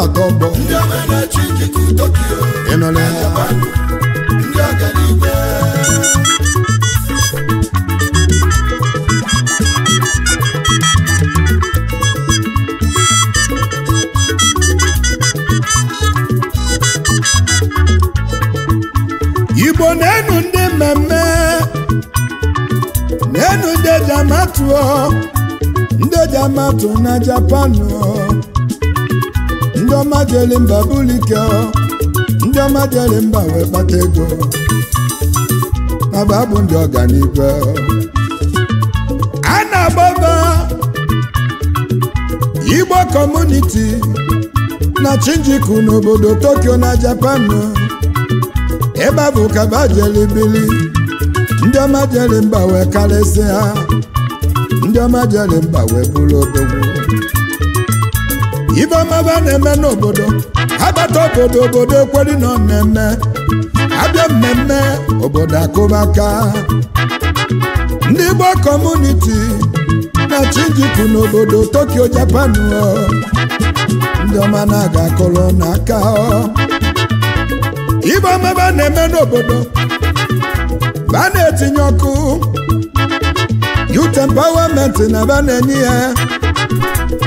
maka ọgbọ igbo na-enu ndị mmemme na-enu ndị jamatu ndị jamatu na japanụ ọma jere mba bulike ndị ọma jere mba wee kpata ego maba bụ ndị ọganibe a na-agbaba igbo kọmuniti na chinjiku n'obodo tokyo na japan ebe bụ kaba jeli bili ndị ọma jeli mba wee ha ndị ọma jeli mba wee bụrụ obogbo ibe ọmaba na-eme n'obodo abata obodo obodo ekweri na mmemme abịa mmemme obodo akụbaka ndị Igbo kọmuniti na Shinjuku n'obodo Tokyo Japan ndị ọma na-aga akụrụ n'aka ibe ọmaba na-eme n'obodo ba na-etinye ọkụ youth empowerment na ba na-enye ya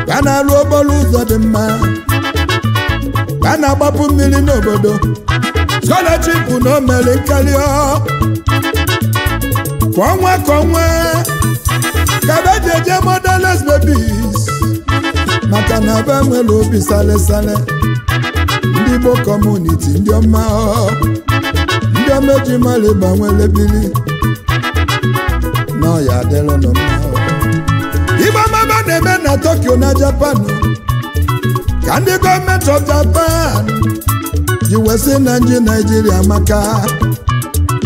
ka na-arụ okporo ụzọ dị mma ka na-agbapụ mmiri n'obodo scholarship na omeri nkarị kwa ọnwa ka ọnwa ka be ji eje maka na be nwere obi sale sale ndị Igbo kọmuniti ndị ọma ndị ọma eji mara ịgba nwere na ọya adịrịnụ mma a na-eme na Tokyo na Japan ka ndị gọọmenti of Japan ji wesị na ndị Naịjirịa maka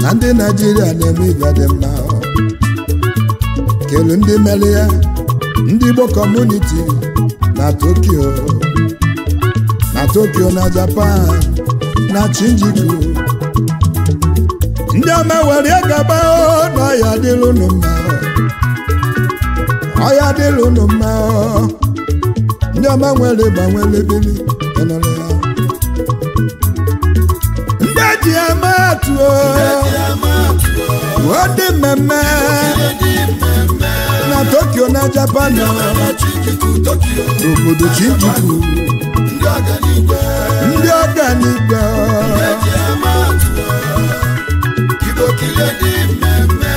na ndị Naịjirịa na-eme ibe dị mma kelu ndị mere ya ndị Igbo kọmuniti na Tokyo na Tokyo na Japan na Shinjuku ndị ọma were gaba n'ọhịa dịrị mma ọya dịlụ unu mma ndị ọma nwere ịgba nwere ebili ya ndị eji eme atụ ọ dị mmemme na Tokyo na Japan obodo Shinjuku ndị ọ Igbo kile dị mmemme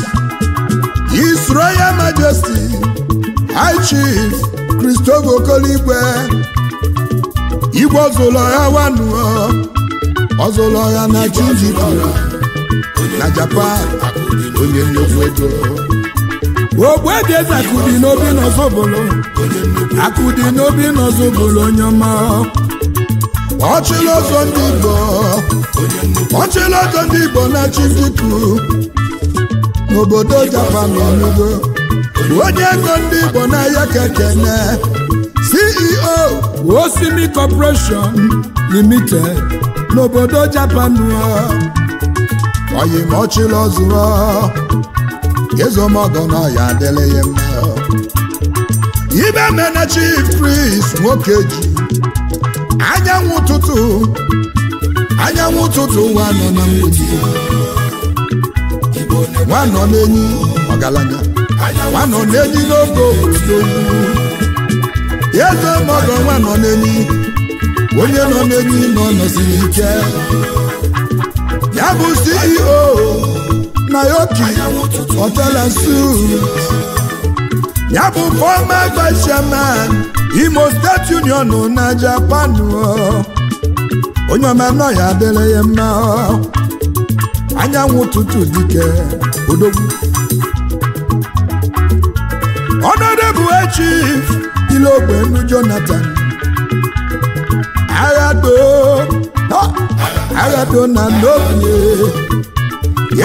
Royal Majesty High Chief Christopher Okoligwe Igwe ọzụlọha wanuo ọzụlọha na Chinjikwara na Japan onye nnukwu ego Ogbuebieze akụdi n'obi n'ọzọbolo akụdi n'obi n'ọzọbolo onye ọma ọchịla ọzọ ndị Igbo ọchịla ọzọ ndị Igbo na Chidiku n'obodo japan enugo onye ego ndị igbo n'ahịa kekene ceo osimi corporation limited n'obodo japan oyimọchịlọ zụrụ ezomọgọ na ọya adịla ihe mma ibe mena chief priest nwoke ji anyanwụ ụtụtụ anyanwụ ụtụtụ ụwa nọ na mgbidi nwa nọ enyi ọgaranya nwanọ na-enyi n'oge owu eze mọdụ nwa nọ n'enyi, onye nọ n'enyi nọ nọsiri ike ya bụ CEO Naoki Otela Suits ya bụ former vice chairman Imo State Union na Japan onye ọma nọ ya adịla ya mma anyanwụ ụtụtụ dike odogwu ọnọdụ bụ echi ilogbe ndụ jonathan aghado aghado na n'obi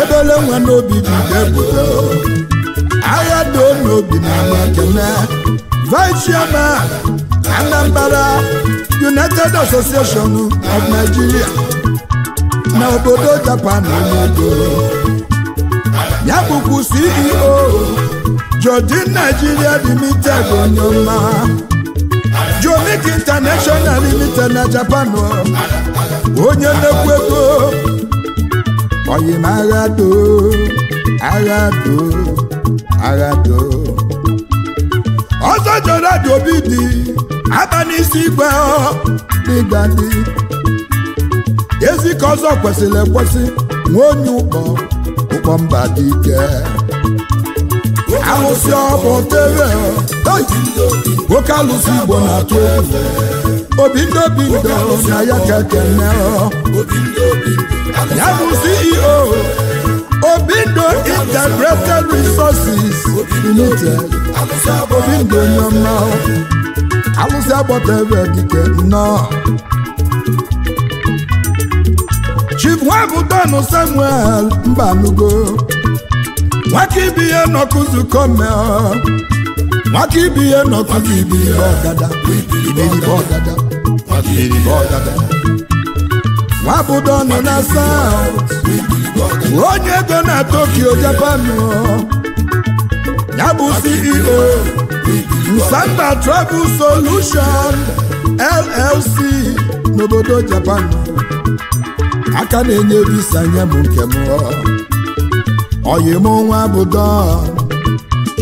ebele nwa n'obi bido ebudo aghado n'obi na amakene vice chairman anambra united association of nigeria na obodo Japan emedo ya bụkwa CEO e Jodin Nigeria Limited onye ọma Jomik International Limited na Japan onye nnekwu ego oyimagado agado agado ọzọ jọrọ dị obi dị aba n'isi igwe ezi ka ọzọ kwesịrị ekwesị nwee onye ụkpọ ụkpọ mba dị ike alụsị ọbụ tere nwoke alụsị igbo na-atụ egwu obi ndị obi ndị na ya ka ekene ya bụ CEO Obindo Integrated Resources Limited Obindo nyọma alụsị agbọta ebe dike nnọọ nwabudonu samuel mbalugo nwaka ibe ihe nọkụzukome nwaka ibe ihe nọkụzibiribe ọgada iberibe ọgada iberibe ọgada nwabudonu na south onye ego na tokyo japan ya bụ ceo nsamba travel solution llc n'obodo japan aka na-enyere isi anya bụ nke m oyim nwa bụ dọ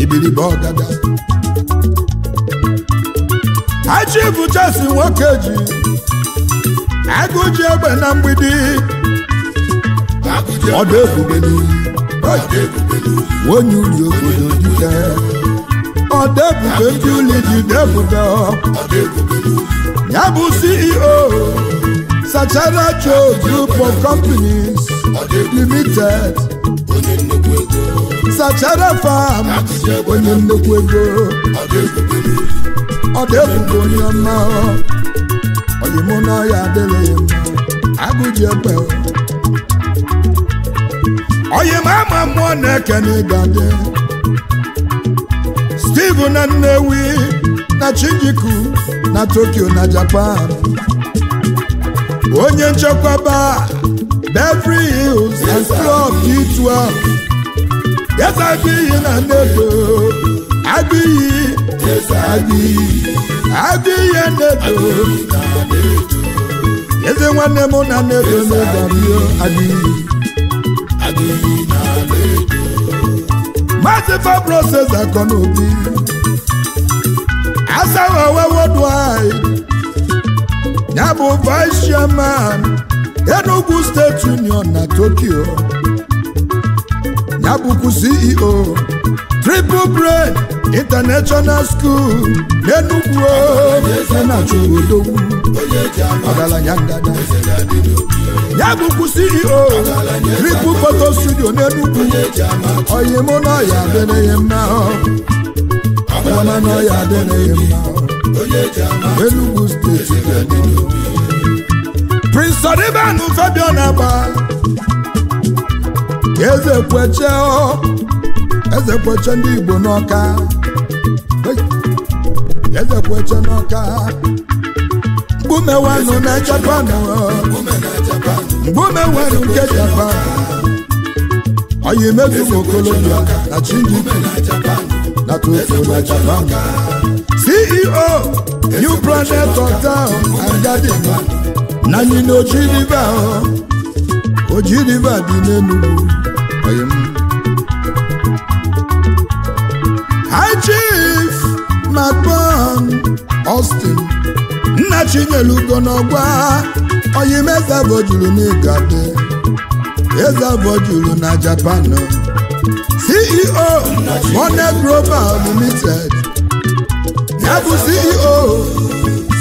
ibilibe ọgada achi nwoke ji agụ ji egbe na mgbidi ọdụ ebubelu onye uri obodo dike ọdụ ebube ndị ụlọ ji debudo ya bụ CEO Sachara Joe Group of Companies Limited Sachara Farm onye nnukwu ego ọ dị ebube onye ọma oyimụ na ọya adịghị mma agụji ekpe oyim ama mmụọ na-ekene ịgadị Steve na Nnewi na Chinjiku na Tokyo na Japan onye nchekwaba Beverly Hills and Club D12 yes ihe na nnedo agbiyi yes agbiyi agbiyi nnedo eze nwanne m na nnedo n'ụdabio agbiyi maazị fabroses akọnaobi asaghị owe wodu anyị ya bụ vice chairman Enugu State Union na Tokyo ya bụkwa CEO Triple Brain International School n'Enugu na ngada ya bụkwa CEO Triple Photo Studio n'Enugu oyimụ na ọya adịrịghị mma ọ mma Enugu steeti Prince Odibanu Fabian Agba Eze kweche Eze kweche ndị Igbo n'Ọka Eze kweche n'Ọka Mgbumewanụ na Japan Mgbumewanụ nke Japan Oyi mezu Okolobia na Chinjipi na Tufo na Japan Ceo, New oh, Planet of Town and na anyị na Oji River Oji River dị n'Enugu High Chief Macban Austin nna Chinyere Ugo n'ọgba Oyimeze bojuru n'Igade Eze juru na Japan CEO Monet Global Limited ya bụ CEO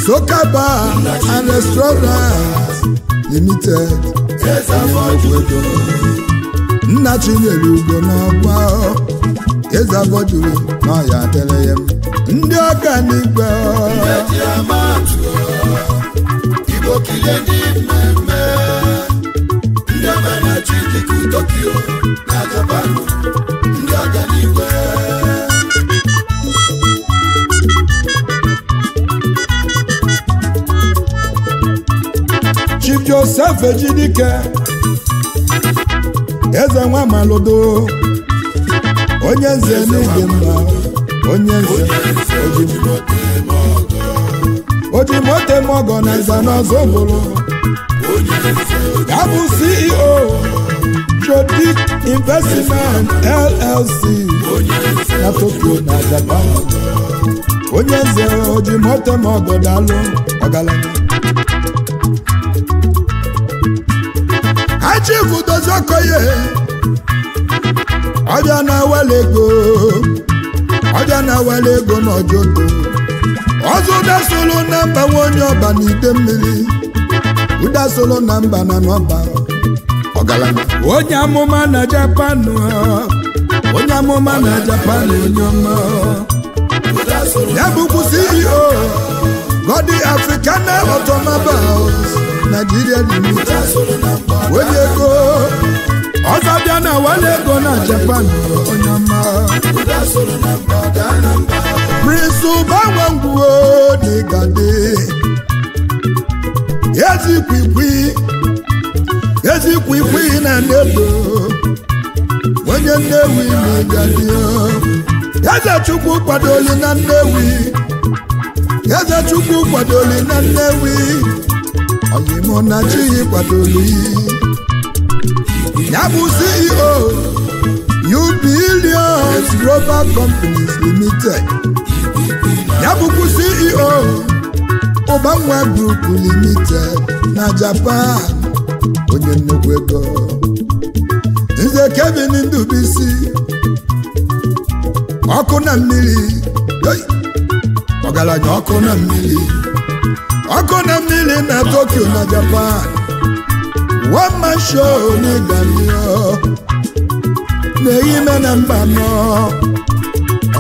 Soka Bar and Restaurant Limited nna chinyere ugo n'ọgwa eze abọduru n'ọya adịrị ya ndị na n'igwe ndị ọma na chi dịka Tokyo na ndị ọka Joseph Ejidike eze nwa malodo onye nze n'ịdị mma onye nze ojimote mogo na nzanọzọ bụrụ ya bụ CEO Jodik Investment LLC na Tokyo na Japan onye nze ojimote mogo dalụ ọgaranya achivu dozi okoye ọbịa na wele ego ọbịa na wele ego n'ojogo ọzọ ụdasolo na mba nwa onye ọba na ide mmiri ụda ụdasolo na mba na n'ọba ọgaranya onye amụma na japan onye amụma na japan onye ọma ya bụ kwụsị CEO Godi African Automobiles naijiria dịrị onye ego ọzọ bịa na wale ego na japan onye ọma prince ụbanwe ngwuo dịgadị ezikwikwi kwikwi na nebo onye nnewi na-egadị eze chukwu kwadoli na nnewi eze chukwu kwadoli na nnewi oyimonachi kwadoli ya bụ CEO Ubilions Global Companies Limited ya bụkwa CEO Ubanwa Group Limited na Japan onye nnukwu ego nze Kevin Ndubisi ọkụ na mmiri ọgaranya ọkụ na mmiri na Tokyo na Japan one man show na-eyi na mba nọ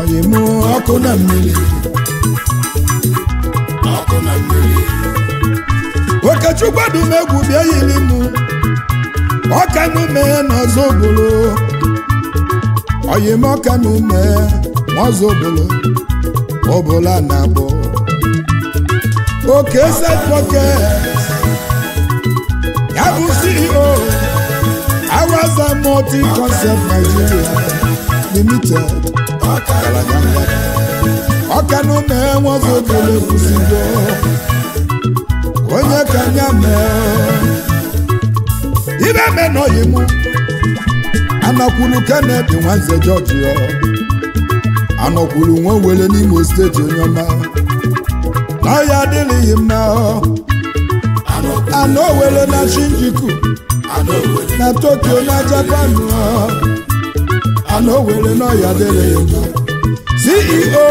oyimụ ọkụ na mmiri okechukwu adumegwu bịa yiri mụ ọka n'ume oke set pocket ya bụ CEO Awaza multi concept Nigeria limited ọkanụ na-enwe ọzọ obere kwụsịgo onye ka ya mee ibe menọghị m anakwulu Kennedy Nwanze George anọkwuru nwa were n'Imo steeti onye ọma ọya adịlịghị m na ana owere na shinjuku na tokyo na japan ana owere n'ọya adịlịghị m ceo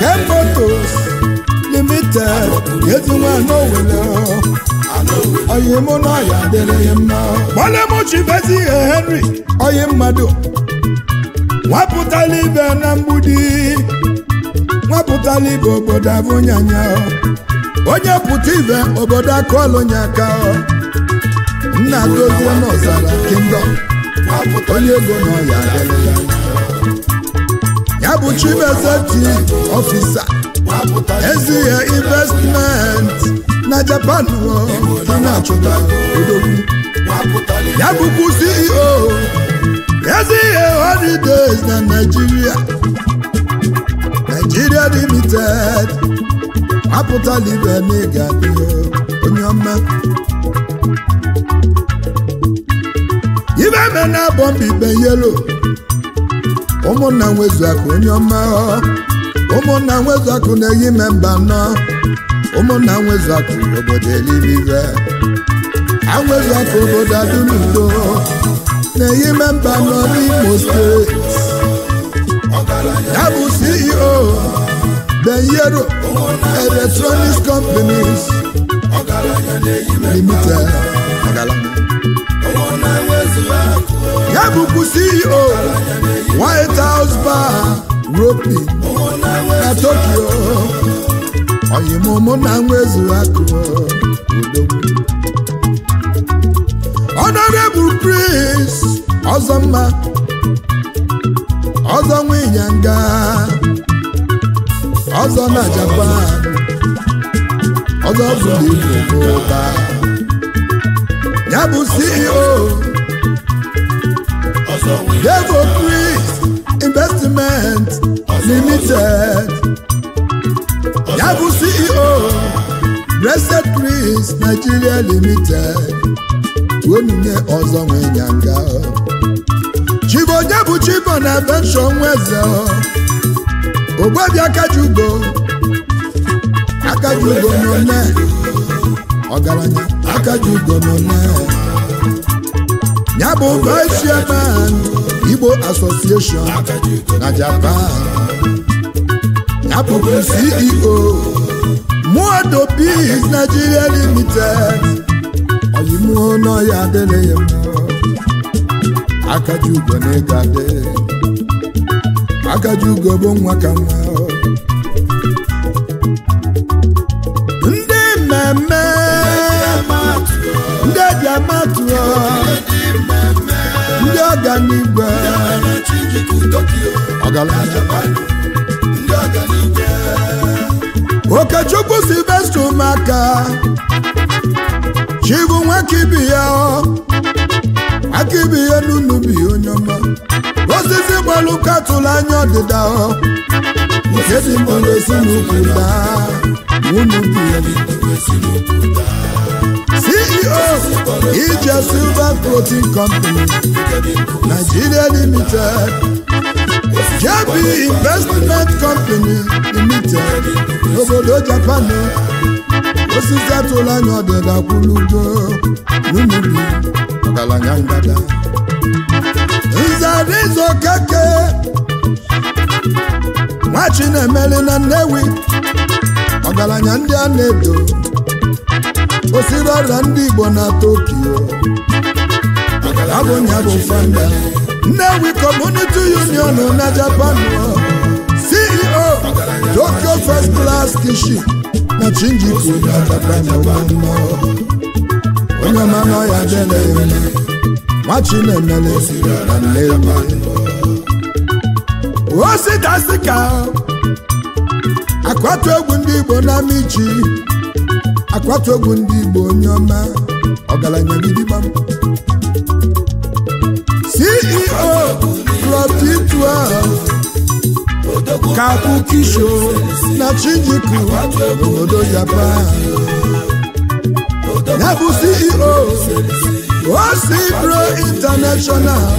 kemotos limited ezinwana owere ọyị mụ n'ọya adịlịghị m na gbale m chibezi ihe henry ọyị mmadụ wapụtala ibe na mgbudi nwapụtala ibe obodo abụnyanya onye pụta ibe obodo akụọlụnya aka nna dozie n'ọzara kingdom onye ego n'ọya ya bụ chibezeti ọfisa ezighi investmenti na japan na-achụta ya bụkwu CEO ezi ihe holidays na Naịjirịa Nigeria limited apụtala ibe na ị ga-adị onye ọma ibe me na abọmbibe yelo ụmụnna nwezuakụ onye ọma ụmụnna nwezuakụ na-eyi memba nọ ụmụnna nwezuakụ obodo eluigwe anwezuakụ obodo adịnudo na-eyi memba nọ n'Imo steeti ya bụ oh. CEO Benyero electronic Companies Limited ya bụkwa CEO White House Bar Ropi na Tokyo oyimụmụ na nwa ezuru akụ oh. Honorable Prince mma. ọzọ nwa ịnyanga ọzọ na Japan ọzọ bụ ihe n'ụba ya bụ CEO Devo Chris Investment Limited ya bụ CEO Blessed Chris Nigeria Limited onye ọzọ nwa ịnyanga chibo onye bụ chibo na benshọ nwa eze ogbebi akajugo akajugo n'one ọgaranya akajugo nne ya bụ vice chairman igbo association na japan ya bụbu ceo muodo peace nigeria limited oyimuo n'ọya adịghị mma akaji ugo na ego adị akaji ugo bụ nwa ka nwa ndị mmemme ndị eji amatụọ ndị ọganigwe ọgaranya okechukwu silvester ụmụaka chibu nwa kibi ya akịbụ ihe n'unubi onye ọma osisi gbalụ katụlụ anya ọdịda nke dị mkpụrụ ezinụkwụ daa n'unubi CEO Ije Silver Protein Company Nigeria Limited JB Investment Company Limited obodo Japan osisi atụla anya ọdịda kwuludo n'umubi ọgalanya ngada nzarizo keke nwachi na-emeli na nnewi ọgaranya ndị a na-edo osiri ọrịa ndị igbo na Tokio abụnya bụ fanda nnewi community union na japan ceo tokyo first class kitchen na chinjiku onye na ya o nwachinemele osidasi ka akwatu egwu ndị igbo na michi akwatu egwu ndị igbo onye ọma ọgaranya m. ceo club d kakukisho na chinjiku obodo japan ya bụ ceo osipro international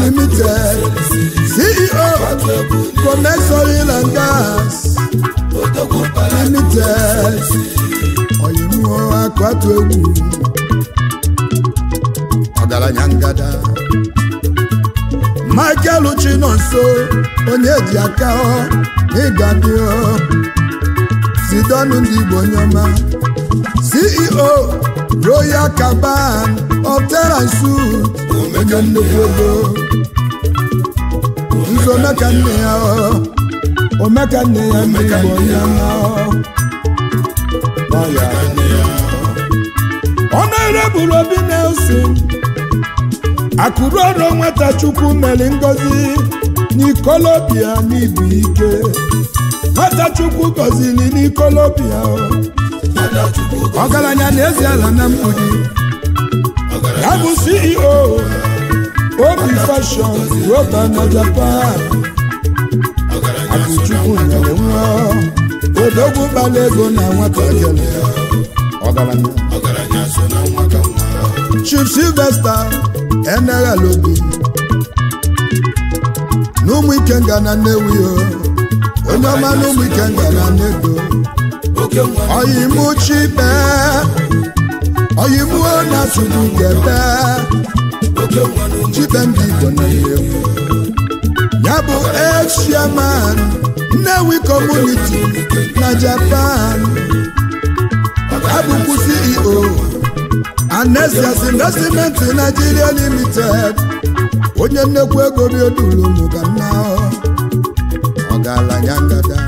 limited ceo commercial and gas limited oyinuo akwatu egwu ọgaranya nyangada. Michael Chinonso onye ji aka ịgadị Sidonu ndị Igbo nyoma CEO Royal Caban Otera Suit onye nnukwu ego nso omeka nne ya omeka nne ya ndị Igbo nyoma ọ na-ereburu Obi Nelson akụruoro nwata chukwu mere ngozi n'ikolobịa n'ibu ike nwata chukwu gọziri n'ikolobịa ọgaranya na-ezi ala na mgbidi ya bụ CEO obi fashion roba na Japan akụchukwu nyere nwa odogwu gbara ego na nwata ọgaranya Chief Sylvester eneghala obi n'ụmụ Ngana na ya oh. onye oh. ọma n'ụmụ Ngana na nnedo Oyi chibe ọ na sudugebe chibe ndị igbo na oh. ya bụ echiaman nnewi kọmuniti na japan abụkwu ceo Anesias Investment Nigeria Limited onye nnekwu ego ga-ala ọgaranya ngada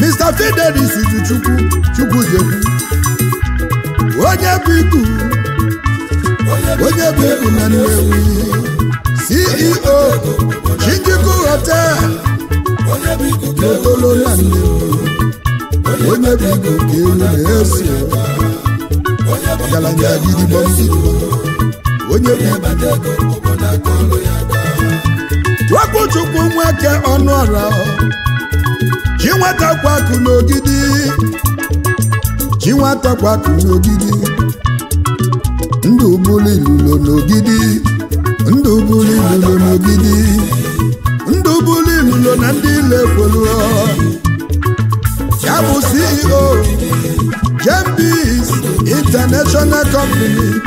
Mr. Fidelis Chukwu Chukwujekwu onye bụ iku onye bụ iku na Nnewi CEO Chijiku Hotel n'Otolo na Nnewi onye bụ iku ka ewu na-eso ndị ọgaranya gidigbo onye wepụ chukwu nweke ọnụ ọra ji nwata kwakụ n'ogidi ji nwata kwakụ n'ogidi ndụ bụrụ ilulo n'ogidi ndụ bụrụ ilulo n'ogidi ndụ bụrụ ilulo na ndị ilekwelu ya bụ CEO international company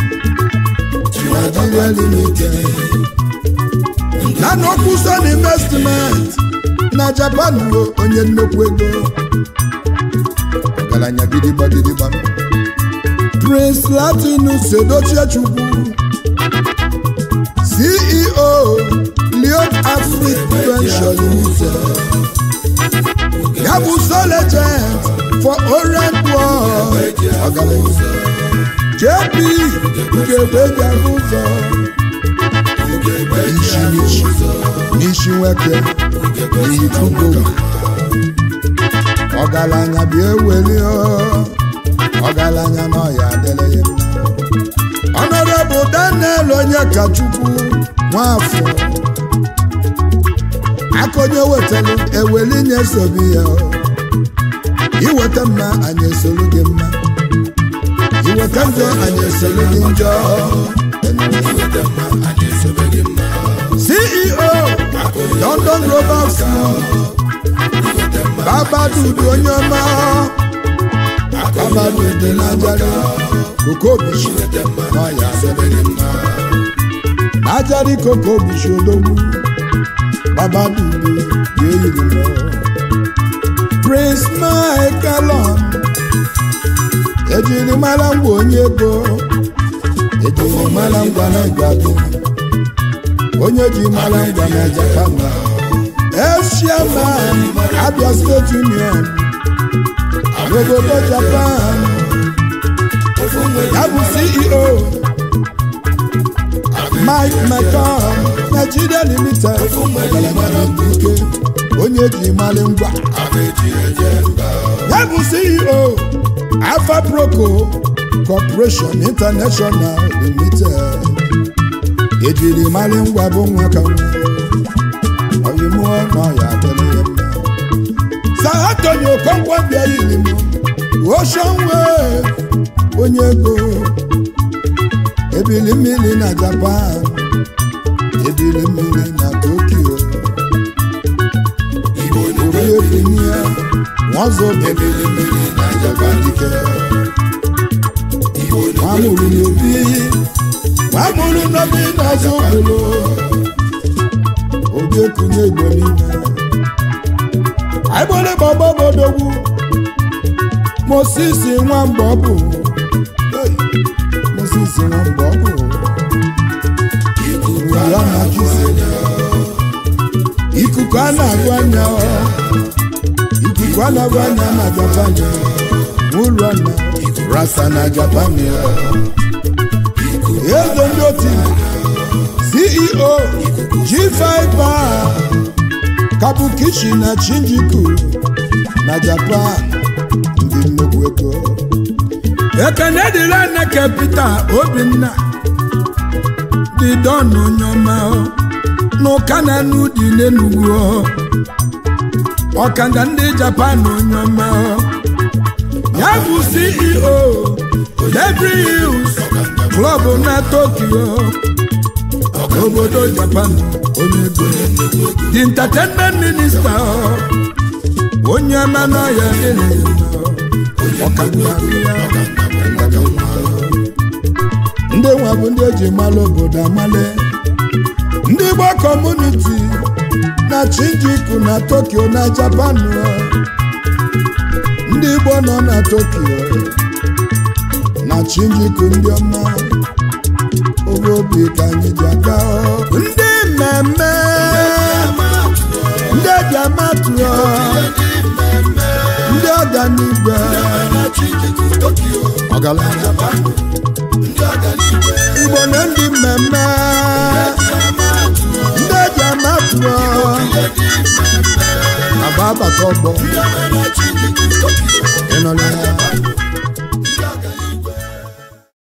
Nigeria limited nana Okuson investment na Japan bụ onye nnukwu ego ọgaranya gidigba gidigba Prince Latinus Edochie Chukwu CEO Leon Africa Venture Limited ya bụ so for Orient War JP ga-egbeji ahụ ụzọ n'isi nweke n'ikuku ọgaranya bịa eweli ọgaranya n'ọya adịla ya Honorable Daniel Onyekachukwu Nwafọ akonye wetara eweli nye sobi ya iweta mma anyị esoro gị mma iweta njọ anyị esoro gị njọ CEO London Global School Babadudu onye ọma Babadudu n'ajarị Kokobushi n'ọya n'ajarị Kokobushi odogwu Babadudu ga-eyiri lọ praise my galon ejiri mara ngwa onye ego ejiri mara ngwa na ngwado onye ji mara ngwa na jakamba eshiaman abia state union obodo japan ya bụ ceo mike mcdonald Nigeria limited ike onye ji malị ngwa ya bụ CEO Alfa Proco Corporation International Limited ejiri malị ngwa bụ nwa ka nwa Okonkwo onye ego ebili mmiri na Japan ebile mmiri na Tokyo onye bunye ya nwazo ebile mmiri na Japan dike nwamuru n'obi iyi nwamuru n'obi n'azụ ụlọ obi ekunye igbo niile agbole baba bodogwu Moses nwamba ọ bụ Moses nwamba ọ bụ ya na ikuku a na ya anya ikuku a na-agụ anya na Japan ụlọ na rasa na Japan eze ndị otu CEO G5 Kabukichi na Shinjuku na Japan ndị nnukwu ego ekene dịla na kapita Obinna dị dọnụ n'ụka na n'ụdị ndị japan nyọma ya bụ ceo Beverly klọb na tokyo obodo japan onye ego the onye ya e nwa bụ ndị eji mala obodo amale ndị Igbo kọmuniti na Shinjuku na Tokyo na Japan ndị Igbo nọ na Tokyo na Shinjuku ndị ọma obi ka anyị ji aga ndị mmemme ndị ejiamatu ndị ọganibe ọgaranya igbo na ndị mmemme ndị eji ama pụọ agba agbata ọgbọ ịnọ n'ahịa